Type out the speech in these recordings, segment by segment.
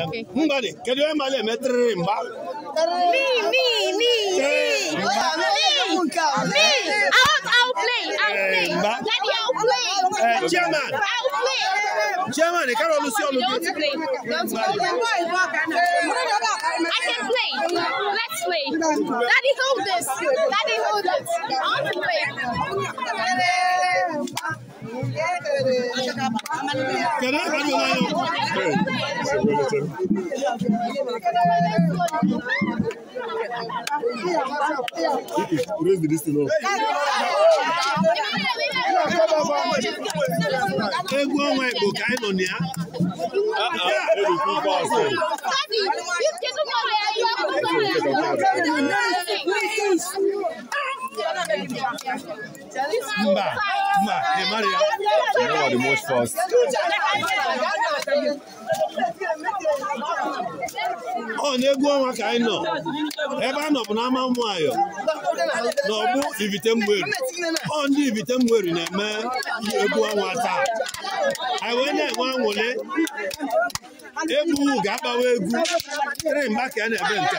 Eh, n e ba de kẹdẹ ẹ ma lẹ mẹ n ba. mi mi mi mi mi mi out out play out play eh, daddy out eh, play. chairman chairman ẹ kẹrọ olùsí olùdí. don't play don't play. I can play let's play daddy hold this daddy hold this I want play. Can I have your line up? Hey, it's a relative. Raise the distance up. Egwu ọnwa Igbo ka anyị nọ na ya. Thank you. Mba, mba, ị mara ya. You are most fast. ọ na-egwu ọnwa ka anyị nọ ebe a nọ bụ n'ama ụmụayọ na ọgbụ ivite mgberi ọ ndị ivite mgberi na-eme egbu egwu ọnwa taa anyị wee na-enwe anwụle egwu ga-agbawa egwu tiri mgba ka a na-eme nke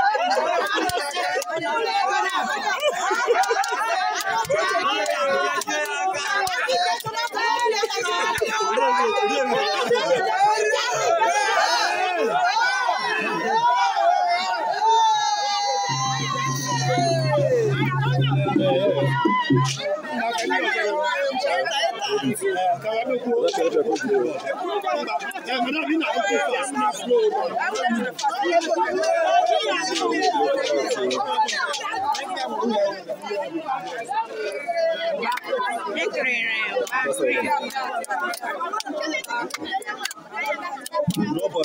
Robert,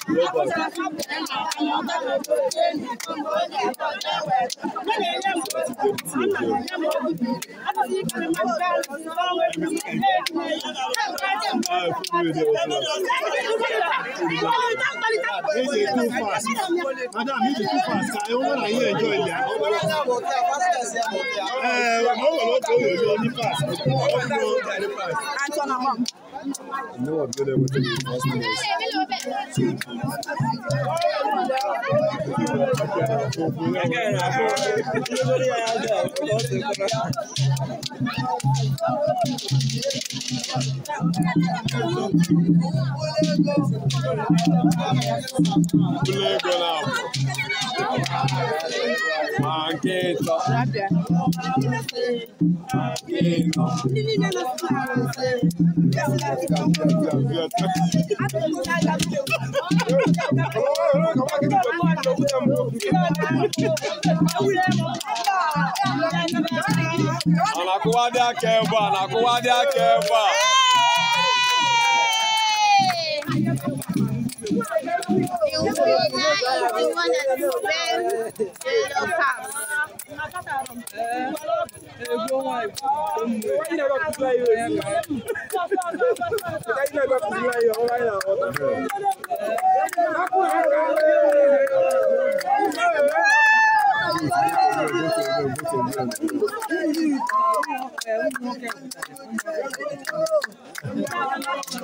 Robert. This is fast. Madam, this is fast. I want to enjoy there. Eh, mo wọ̀ lọ́tọ̀ òyìnbó ní fast. Antona mom. No one good Play Mageto. di dake ba, anakuwa dake ba. the one that is wearing yellow cap. Thank you.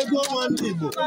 ego nwanne Igbo ọ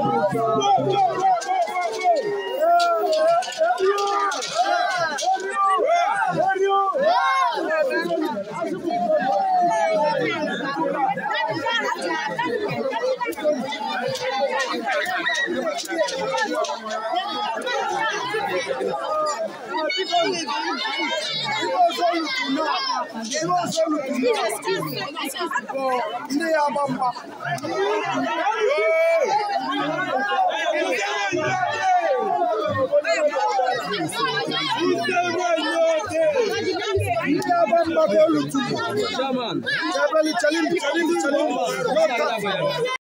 go, go, go. ihe ọzọ challenge challenge challenge